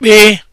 kpee